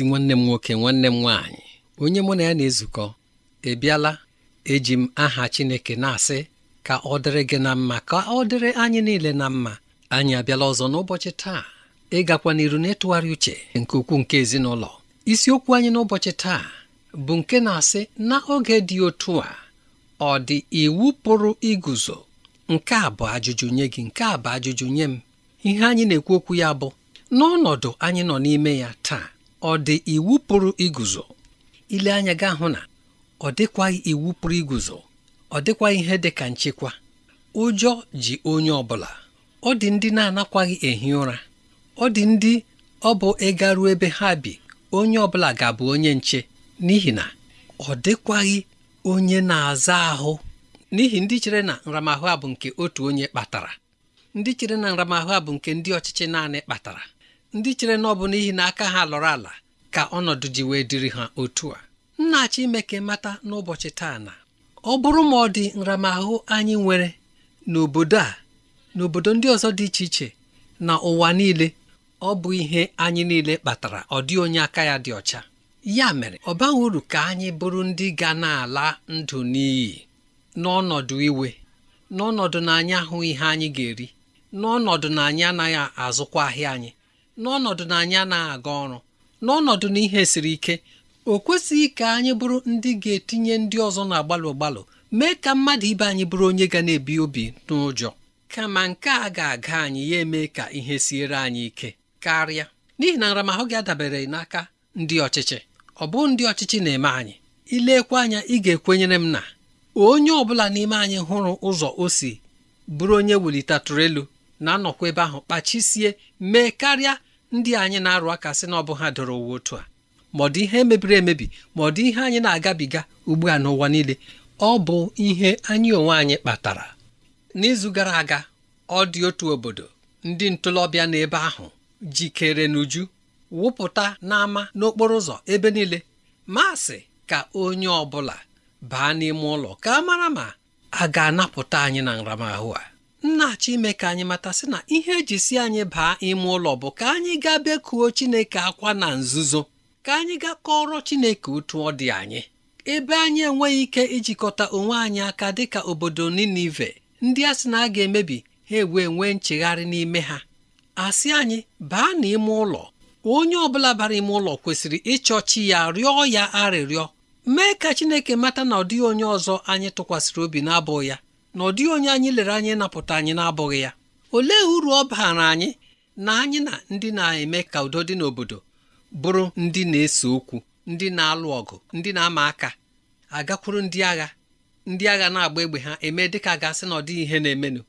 ezi nwanne m nwoke nwanne m nwaanyị onye mụ na ya na-ezukọ Ebiala. eji m aha Chineke na-asị ka ọ dịrị gị na mma ka ọ dịrị anyị niile na mma anyị abịala ọzọ n'ụbọchị taa ịgakwa n'iru n'ịtụgharị uche nke ukwuu nke ezinụlọ isiokwu anyị n'ụbọchị taa bụ nke na-asị na oge dị otu a ọ dị iwu pụrụ iguzo nke a bụ ajụjụ nye gị nke a bụ ajụjụ nye m ihe anyị na-ekwu okwu ya bụ n'ọnọdụ anyị nọ n'ime ya taa ọ dị iwu pụrụ iguzo ile anya ga hụ na ọ dịkwaghị iwu pụrụ iguzo ọ dịkwaghị ihe dị ka nchekwa ụjọ ji onye ọ bụla ọ dị ndị na-anakwaghị ehi ụra ọ dị ndị ọ bụ ịga ruo ebe ha bi onye ọ bụla ga-abụ onye nche n'ihi na ọ dịkwaghị onye na-aza ahụ n'ihi ndị chere na nramahụ a bụ nke otu onye kpatara ndị chere na nramahụ a bụ nke ndị ọchịchị naanị kpatara ndị chere na ọ bụ n'ihi na aka ha lọrọ ala ka ọnọdụ ji wee dịrị ha otu a nna achọ ime ka mata n'ụbọchị taa na ọ bụrụ ma ọ dị nramahụ anyị nwere n'obodo a n'obodo ndị ọzọ dị iche iche na ụwa niile ọ bụ ihe anyị niile kpatara ọ dị onye aka ya dị ọcha ya mere ọ baghị uru ka anyị bụrụ ndị ga na-ala ndụ n'iyi n'ọnọdụ iwe n'ọnọdụ na anyị ahụ ihe anyị ga-eri n'ọnọdụ na anyị anaghị azụkwa ahịa anyị n'ọnọdụ na anyị anaghị aga ọrụ n'ọnọdụ na ihe siri ike o kwesịghị ka anyị bụrụ ndị ga-etinye ndị ọzọ na-agbalụ gbalụ mee ka mmadụ ibe anyị bụrụ onye ga na-ebi obi n'ụjọ kama nke a ga-aga anyị ya eme ka ihe siere anyị ike karịa n'ihi na nramahụ gị adabere n'aka ndị ọchịchị ọ bụ ndị ọchịchị na-eme anyị ilekwa anya ị ga-ekwenyere m na onye ọ bụla n'ime anyị hụrụ ụzọ o si bụrụ onye welitatụrụ elu na-anọkwa ebe ahụ kpachisie mee karịa ndị anyị na-arụ aka sị na ọ bụ ha doro uwe otu a ma ọ dị ihe mebiri emebi ma ọ dị ihe anyị na-agabiga ugbu a n'ụwa niile ọ bụ ihe anyị onwe anyị kpatara n'izu gara aga ọ dị otu obodo ndị ntolobịa n'ebe ahụ jikere n'uju wụpụta n'ama n'okporo ụzọ ebe niile masị ka onye ọ bụla baa n'ime ụlọ ka a mara ma a ga-anapụta anyị na nramahụ a nna-achọ ime ka anyị mata sị na ihe eji si anyị baa ime ụlọ bụ ka anyị gaa bekuo Chineke akwa na nzuzo ka anyị gaa kọrọ Chineke otu ọ dị anyị ebe anyị enweghị ike ijikọta onwe anyị aka dịka obodo Ninive ndị a sị na a ga-emebi ha ewee nwee nchegharị n'ime ha asị anyị baa n'ime ụlọ onye ọbụla bara ime ụlọ kwesịrị ịchọ chi ya rịọ ya arịrịọ mee ka Chineke mata na ọ dịghị onye ọzọ anyị tụkwasịrị obi na-abụ ya na ọ dịghị onye anyị lere anyị napụta anyị na-abụghị ya olee uru ọ baara anyị na anyị na ndị na-eme ka udo dị n'obodo bụrụ ndị na-ese okwu ndị na-alụ ọgụ ndị na-ama aka agakwuru ndị agha ndị agha na-agba egbe ha eme dịka gasị na ọ dịghị ihe na-emenụ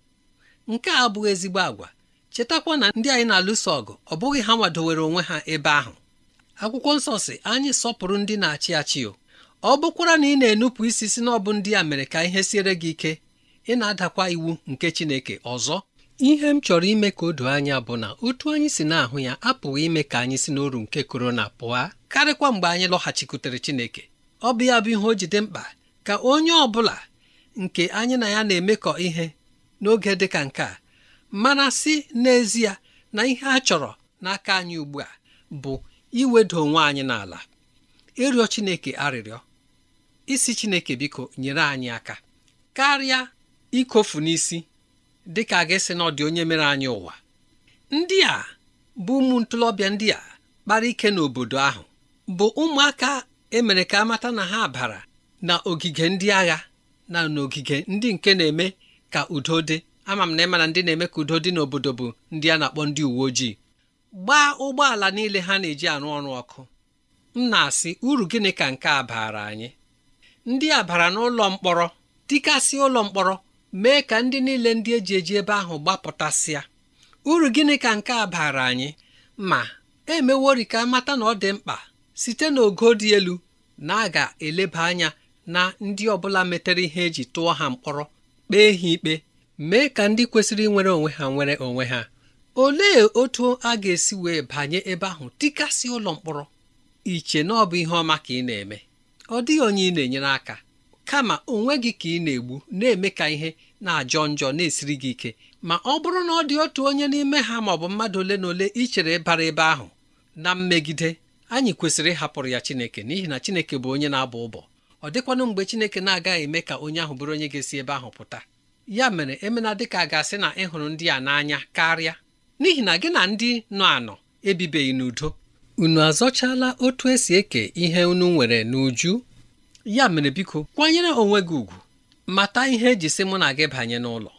nke a abụghị ezigbo agwa chetakwa na ndị anyị na-alụso ọgụ ọ bụghị ha nwadowere onwe ha ebe ahụ akwụkwọ nsọ si anyị sọpụrụ ndị na-achị achị ọ bụkwara na ị na-enupụ isi si na ọ bụ ndị a mere ka ihe siere gị ike ị na-adakwa iwu nke Chineke ọzọ ihe m chọrọ ime ka o doo anya bụ na otu anyị si na-ahụ ya apụghị ime ka anyị si n'oru nke korona pụọ karịkwa mgbe anyị lọghachikwutere Chineke ọ bụ ya bụ ihe o jide mkpa ka onye ọ bụla nke anyị na ya na-emekọ ihe n'oge dị ka nke a mana si n'ezie na ihe a chọrọ n'aka anyị ugbu a bụ iwedo onwe anyị n'ala ịrịọ Chineke arịrịọ isi Chineke biko nyere anyị aka karịa ikofu n'isi dịka a ga na ọ onye mere anyị ụwa ndị a bụ ụmụ ntolobịa ndị a kpara ike n'obodo ahụ bụ ụmụaka emere ka amata na ha bara na ogige ndị agha na n'ogige ndị nke na-eme ka udo dị ama m na ịmana ndị na-eme ka udo dị n'obodo bụ ndị a na-akpọ ndị uwe ojii gbaa ụgbọala niile ha na-eji arụ ọrụ ọkụ m na-asị uru gịnị ka nke a baara anyị ndị a bara n'ụlọ mkpọrọ dịkasị ụlọ mkpọrọ mee ka ndị niile ndị eji eji ebe ahụ gbapụtasịa uru gịnị ka nke a baara anyị ma emewori ka mata na ọ dị mkpa site n'ogo dị elu na a ga-eleba anya na ndị ọbụla metere ihe eji tụọ ha mkpọrọ kpee ha ikpe mee ka ndị kwesịrị nwere onwe ha nwere onwe ha olee otu a ga-esi wee banye ebe ahụ tikasị ụlọ mkpọrọ iche na ọ bụ ihe ọma ka ị na-eme ọ dịghị onye ị na-enyere aka kama onwe gị ka ị na-egbu na-eme ka ihe na-ajọ njọ na-esiri gị ike ma ọ bụrụ na ọ dị otu onye n'ime ha ma ọ bụ mmadụ ole na ole ichere bara ebe ahụ na mmegide anyị kwesịrị ịhapụrụ ya Chineke n'ihi na Chineke bụ onye na-abụ ụbọ ọ dịkwanụ mgbe Chineke na-agaghị eme ka onye ahụ bụrụ onye ga-esi ebe ahụ pụta ya mere emena dịka ga-asị na ịhụrụ ndị a n'anya karịa n'ihi na gị na ndị nọ anọ ebibeghị n'udo unu azọchala otu esi eke ihe unu nwere n'uju ya mere biko kwanyere onwe gị ugwu mata ihe eji sị mụ na gị banye n'ụlọ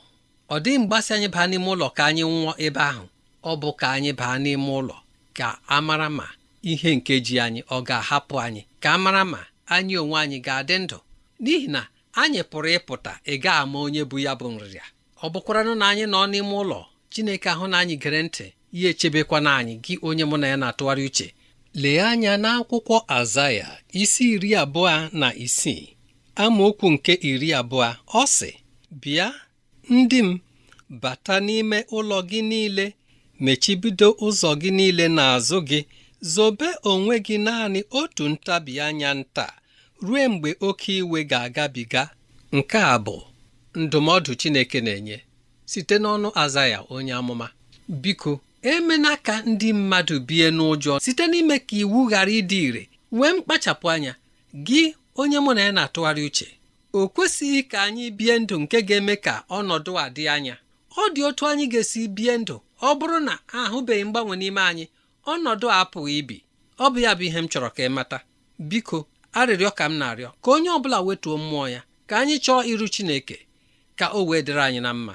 ọ dịghị mgbasị anyị baa n'ime ụlọ ka anyị nwụọ ebe ahụ ọ bụ ka anyị baa n'ime ụlọ ka a mara ma ihe nke ji anyị ọ ga-ahapụ anyị ka a mara ma anyị onwe anyị ga-adị ndụ n'ihi na anyị pụrụ ịpụta ị ga ama onye bụ ya bụ nrịa. ọ bụkwaranụ na anyị nọ n'ime ụlọ Chineke ahụ na anyị gere ntị ya echebekwana anyị gị onye mụ na ya na-atụgharị uche lee anya n'akwụkwọ azaya isi iri abụọ na isii amaokwu nke iri abụọ ọ sị bịa ndị m bata n'ime ụlọ gị niile mechibido ụzọ gị niile n'azụ gị zobe onwe gị naanị otu ntabi anya nta ruo mgbe oke iwe ga-agabiga nke a bụ ndụmọdụ Chineke na-enye site n'ọnụ azaya onye amụma biko emena ka ndị mmadụ bie n'ụjọ site n'ime ka iwu ghara ịdị ire nwee mkpachapụ anya gị onye mụ na ya na-atụgharị uche o kwesịghị ka anyị bie ndụ nke ga-eme ka ọnọdụ a dị anya ọ dị otu anyị ga-esi bie ndụ ọ bụrụ na ahụbeghị mgbanwe n'ime anyị ọnọdụ a apụghị ibi ọ bụ ya bụ ihe m chọrọ ka ị mata biko arịrịọ ka m na-arịọ ka onye ọ bụla wetuo mmụọ ya ka anyị chọọ iru Chineke ka o wee dịrị anyị na mma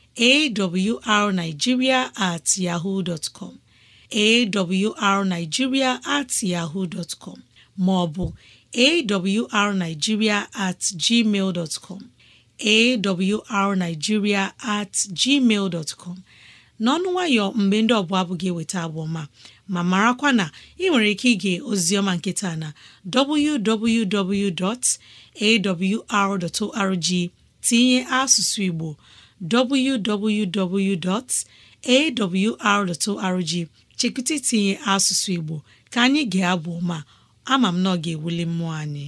awrnigeria at yahoo dot com at yahoo dot com maọbụ arigiria at gmail dot com at gmail dot n'ọnụ nwayọ mgbe ndị ọbụla abụ gị eweta abụọma ma marakwa na ị nwere ike ige ozioma nkịta na www.awr.org tinye asụsụ Igbo www.awr.org chekwụta itinye asụsụ Igbo ka anyị ga-abụ ma ama m na ọ ga-ewuli mmụọ anyị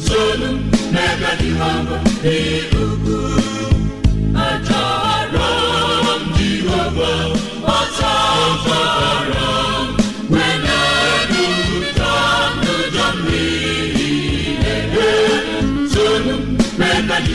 nzolu n'ebe dị hama n'ugwu achọrọ m jehova ọsọzọrọ wenedụta n'ụjọ mmiri na-ebe nzolu n'ebe dị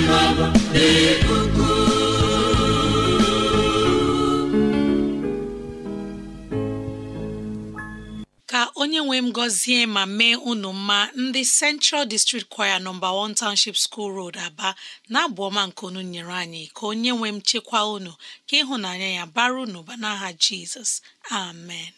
Ka onye nwe m gọzie ma mee unu mma ndị Central District Choir nọmba 1 Township School Road Aba na-abụ ọma nke unu nyere anyị ka onye nwe m chekwa unu ka ịhụnanya ya bara unu ba n'aha Jizọs amen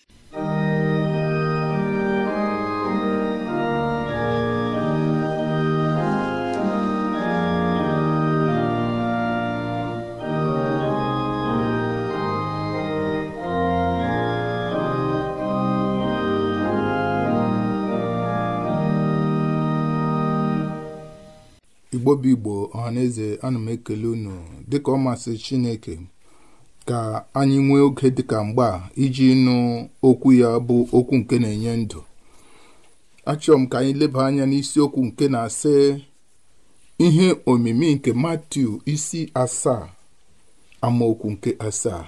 igbo bụ igbo ọhaneze ana m ekele unu dịka ọ masị chineke ka anyị nwee oge dịka mgba iji nụ okwu ya bụ okwu nke na-enye ndụ achọrọ m ka anyị leba anya n'isiokwu nke na-asị ihe omimi nke matiu isi asaa amaokwu nke asaa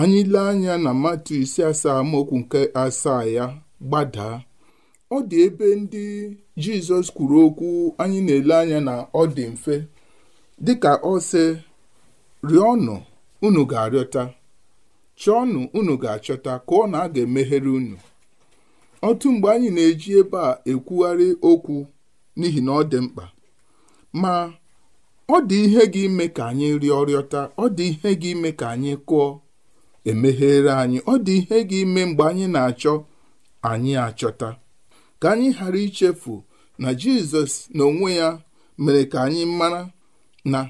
anyị lee anya na matiu isi asaa amaokwu nke asaa ya gbadaa ọ dị ebe ndị jizọs kwuru okwu anyị na-ele anya na ọ dị mfe dịka ọ sị rịọnụ unu ga-arịọta chọọnụ unu ga-achọta ka na a ga-emeghere unu otu mgbe anyị na-eji ebe a ekwugharị okwu n'ihi na ọ dị mkpa ma ọ dị ihe gị ime ka anyị rịọ rịọta ọ dị ihe gị ime ka anyị kụọ emeghere anyị ọ dị ihe gị ime mgbe anyị na-achọ anyị achọta ka anyị ghara ichefu na jizọs na onwe ya mere ka anyị mara na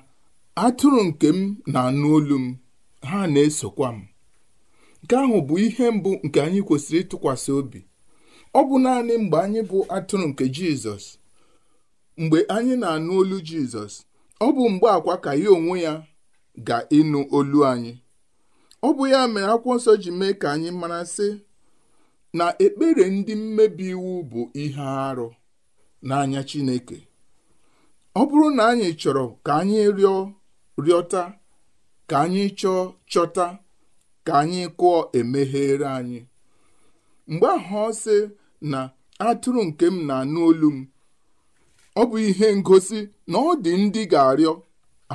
atụrụ nke m na-anụ olu m ha na-esokwa m nke ahụ bụ ihe mbụ nke anyị kwesịrị ịtụkwasị obi ọ bụ naanị mgbe anyị bụ atụrụ nke jizọs mgbe anyị na-anụ olu jizọs ọ bụ mgbe akwa ka ya onwe ya ga-ịnụ olu anyị ọ bụ ya mere akwụkwọ nsọ ji mee ka anyị mara sị na ekpere ndị mmebi iwu bụ ihe arụ n'anya Chineke ọ bụrụ na anyị chọrọ ka anyị rịọ rịọta ka anyị chọọ chọta ka anyị kụọ emeghere anyị mgbe ahụ ọ sị na atụrụ nke m na-anụ olu m ọ bụ ihe ngosi na ọ dị ndị ga-arịọ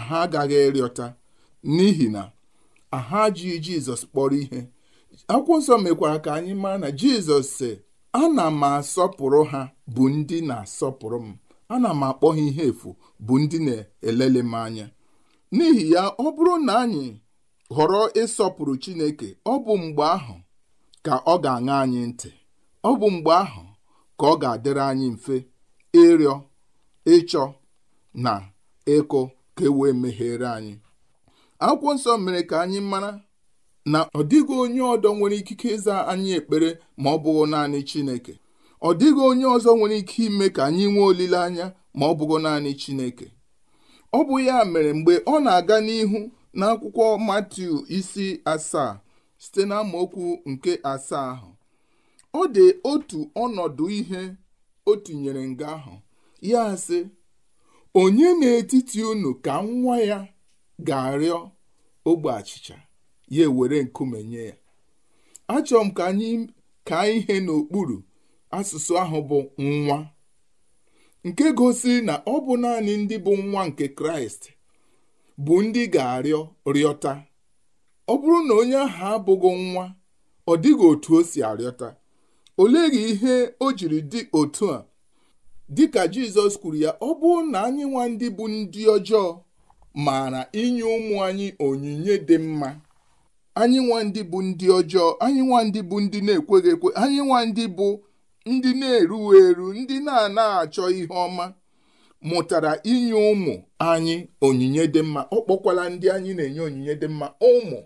ha agaghị rịọta n'ihi na ha ji Jizọs kpọrọ ihe akwụkwọ nsọ mekwara ka anyị mara na jizọs sị ana m asọpụrụ ha bụ ndị na-asọpụrụ m ana m akpọ ha ihe efu bụ ndị na-elele m anya n'ihi ya ọ bụrụ na anyị họrọ ịsọpụrụ chineke ọ bụ mgbe ahụ ka ọ ga-aṅa anyị ntị ọ bụ mgbe ahụ ka ọ ga-adịrị anyị mfe ịrịọ ịchọ na ịkụ ka e wee meghere anyị akwụkwọ nsọ mere ka anyị mara na ọ dịghị onye ọdọ nwere ikike ịza anyị ekpere ma ọ bụghị naanị Chineke ọ dịghị onye ọzọ nwere ike ime ka anyị nwee olileanya ma ọ bụghị naanị Chineke ọ bụ ya mere mgbe ọ na-aga n'ihu n'akwụkwọ Matiu isi asaa site na nke asaa ahụ ọ dị otu ọnọdụ ihe o tinyere nga ahụ ya sị onye n'etiti unu ka nwa ya ga-arịọ ogbe achịcha ya ewere nkume nye ya achọrọ m ka anyị ka ihe n'okpuru asụsụ ahụ bụ nwa nke gosiri na ọ bụ naanị ndị bụ nwa nke kraịst bụ ndị ga-arịọ rịọta ọ bụrụ na onye ahụ abụghị nwa ọ dịghị otu o si arịọta oleghị ihe o jiri dị otu a dị ka jizọs kwuru ya ọ bụrụ na anyị nwa ndị bụ ndị ọjọọ maara inye ụmụ anyị onyinye dị mma anyị nwa ndị bụ ndị ọjọọ anyị nwa ndị bụ ndị na-ekweghị ekwe anyị nwa ndị bụ ndị na-eru eru ndị na ana achọ ihe ọma mụtara inye ụmụ anyị onyinye dị mma ọ kpọkwala ndị anyị na-enye onyinye dị mma ụmụ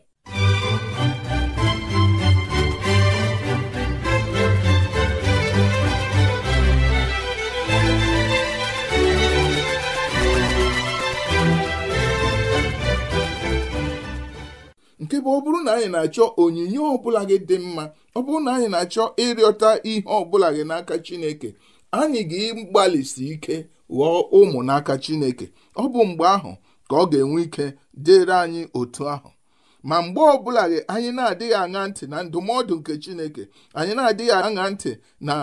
nke bụ ọ bụrụ na anyị na-achọ onyinye ọbụla gị dị mma ọ bụrụ na anyị na-achọ ịrịọta ihe ọbụla gị n'aka Chineke anyị ga ịgbalịsi ike ghọọ ụmụ n'aka Chineke ọ bụ mgbe ahụ ka ọ ga-enwe ike dịrị anyị otu ahụ ma mgbe ọbụla gị anyị na-adịghị aṅa ntị na ndụmọdụ nke Chineke anyị na-adịghị aṅa ntị na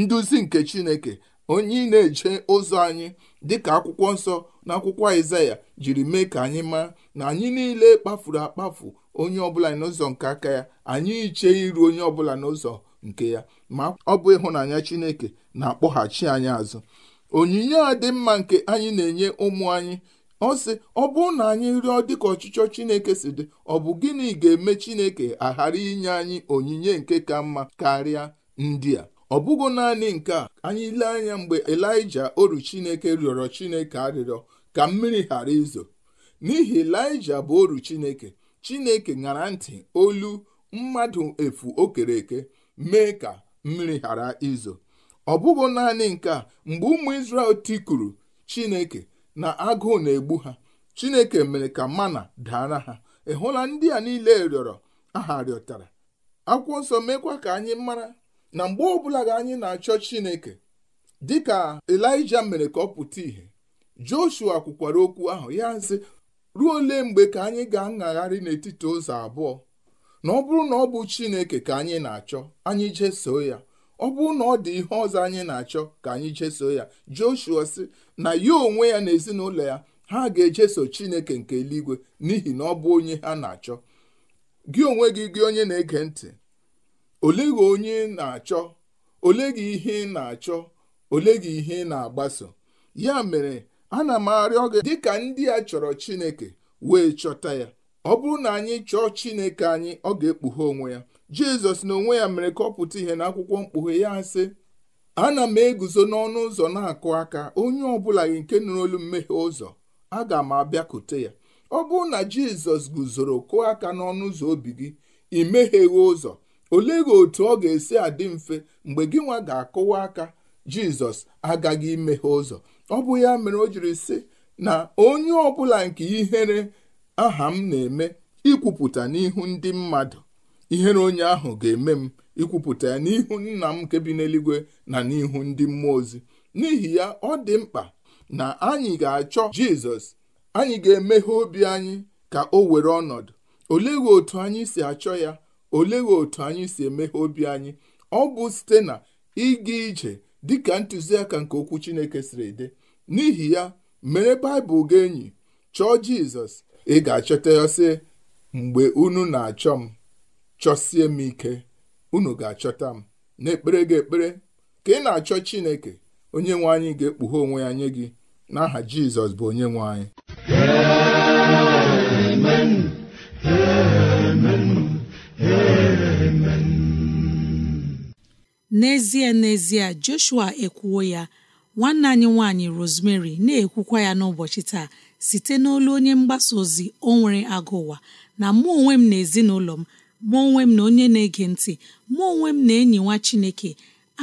nduzi nke Chineke onye na-eje ụzọ anyị dịka akwụkwọ nsọ na akwụkwọ Aịzaya jiri mee ka anyị maa na anyị niile kpafuru akpafu onye ọbụla n'ụzọ nke aka ya anyị iche iru onye ọbụla n'ụzọ nke ya ma ọ bụ ịhụnanya Chineke na-akpọghachi anyị azụ onyinye a dị mma nke anyị na-enye ụmụ anyị ọ sị ọ bụrụ na anyị rịọ dịka ọchịchọ Chineke si dị ọ bụ gịnị ga-eme Chineke aghara inye anyị onyinye nke ka mma karịa ndị a ọ bụghị naanị nke a anyị lee anya mgbe Elija oru Chineke rịọrọ Chineke arịrịọ ka mmiri ghara izo n'ihi Elija bụ oru Chineke chineke ṅara ntị olu mmadụ efu o kere eke mee ka mmiri ghara izo ọ bụghị naanị nke a mgbe ụmụ isrel tikuru chineke na agụụ na-egbu ha chineke mere ka mana dara ha ị hụla ndị a niile rịọrọ aha rịọtara akwụkwọ nsọ mekwa ka anyị mara na mgbe ọbụla ga anyị na-achọ chineke dịka Elija mere ka ọ pụta ìhè Joshua kwukwara okwu ahụ ya sị ruo ole mgbe ka anyị ga-aṅagharị n'etiti ụzọ abụọ na ọ bụrụ na ọ bụ Chineke ka anyị na-achọ anyị jesoo ya ọ bụrụ na ọ dị ihe ọzọ anyị na-achọ ka anyị jeso ya Joshua sị na ya onwe ya na ezinụlọ ya ha ga-ejeso Chineke nke eluigwe n'ihi na ọ bụ onye ha na-achọ gị onwe gị gị onye na-ege ntị ole gị onye na-achọ ole gị ihe ị na-achọ ole gị ihe ị na-agbaso ya mere ana m arịọ gị dịka ndị a chọrọ Chineke wee chọta ya ọ bụrụ na anyị chọọ Chineke anyị ọ ga-ekpughe onwe ya Jizọs na onwe ya mere ka ọ pụta ihe akwụkwọ mkpughe ya sị ana m eguzo n'ọnụ ụzọ na-akụ aka onye ọbụla gị nke nụrụ olu mmehie ụzọ aga m abịakute ya ọ bụrụ na Jizọs guzoro kụọ aka n'ọnụ ụzọ obi gị ị meghieghị ụzọ olee gị otu ọ ga-esi adị mfe mgbe gị nwa ga-akụwa aka Jizọs agaghị imeghe ụzọ ọ bụ ya mere o jiri sị na onye ọbụla nke ihere aha m na-eme ikwupụta n'ihu ndị mmadụ ihere onye ahụ ga-eme m ikwupụta ya n'ihu nna m nke bi n'eluigwe na n'ihu ndị mmụọ ozi n'ihi ya ọ dị mkpa na anyị ga-achọ jizọs anyị ga-emeghe obi anyị ka o were ọnọdụ olee otu anyị si achọ ya olee otu anyị si emeghe obi anyị ọ bụ site na ịga ije dịka ntụziaka nke okwu chineke siri dị n'ihi ya mere baịbụl gị enyi chọọ jizọs ị ga-achọta ya sị mgbe unu na-achọ m chọsie m ike unu ga-achọta m na ekpere gị ekpere ka ị na-achọ chineke onye nwe anyị ga-ekpughe onwe ya nye gị n'aha jizọs bụ onye nwe anyị n'ezie n'ezie joshua ekwuwo ya nwanne anyị nwanyị Rosemary na-ekwukwa ya n'ụbọchị taa site n'olu onye mgbasa ozi o nwere agụ ụwa na mụ onwe m na ezinụlọ m mụ onwe m na onye na-ege ntị mụ onwe m na enyi nwa Chineke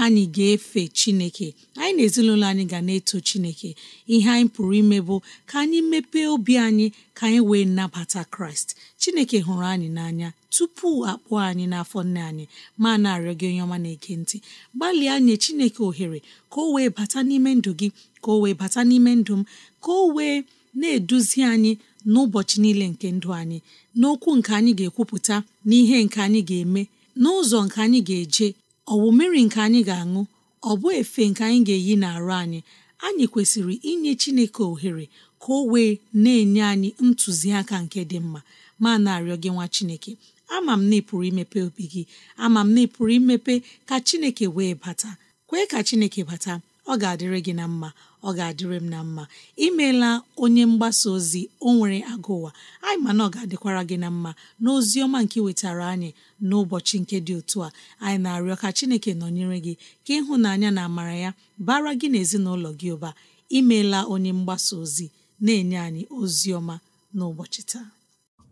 anyị ga-efe Chineke anyị na ezinụlọ anyị ga na-eto Chineke ihe anyị pụrụ ime bụ ka anyị mepee obi anyị ka anyị wee nabata Kraịst chineke hụrụ anyị n'anya tupu akpụọ anyị n'afọ nne anyị ma na-arịọ gị onye ọma na-ege ntị gbalịa nye chineke ohere ka o wee bata n'ime ndụ gị ka o wee bata n'ime ndụ m ka o wee na-eduzi anyị n'ụbọchị niile nke ndụ anyị n'okwu nke anyị ga-ekwupụta n'ihe nke anyị ga-eme n'ụzọ nke anyị ga-eje ọ bụ mmiri nke anyị ga-aṅụ ọ bụ efe nke anyị ga-eyi n'arụ anyị anyị kwesịrị inye chineke ohere ka o wee na-enye anyị ntụziaka nke dị mma ma na-arịọ gị nwa chineke ama m na ị pụrụ imepe obi gị ama m na ị pụrụ imepe ka chineke wee bata kwee ka chineke bata ọ ga-adịrị gị na mma ọ ga-adịrị m na mma imeela onye mgbasa ozi o nwere agụ ụwa anyị mana ọ ga-adịkwara gị na mma n'ozi ọma nke wetara anyị n'ụbọchị nke dị otu a anyị na-arịọ ka chineke nọnyere gị ka ịhụnanya na amara ya bara gị na ezinụlọ gị ụba imeela onye mgbasa ozi na-enye anyị ozi ọma n'ụbọchị taa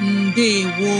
ndewo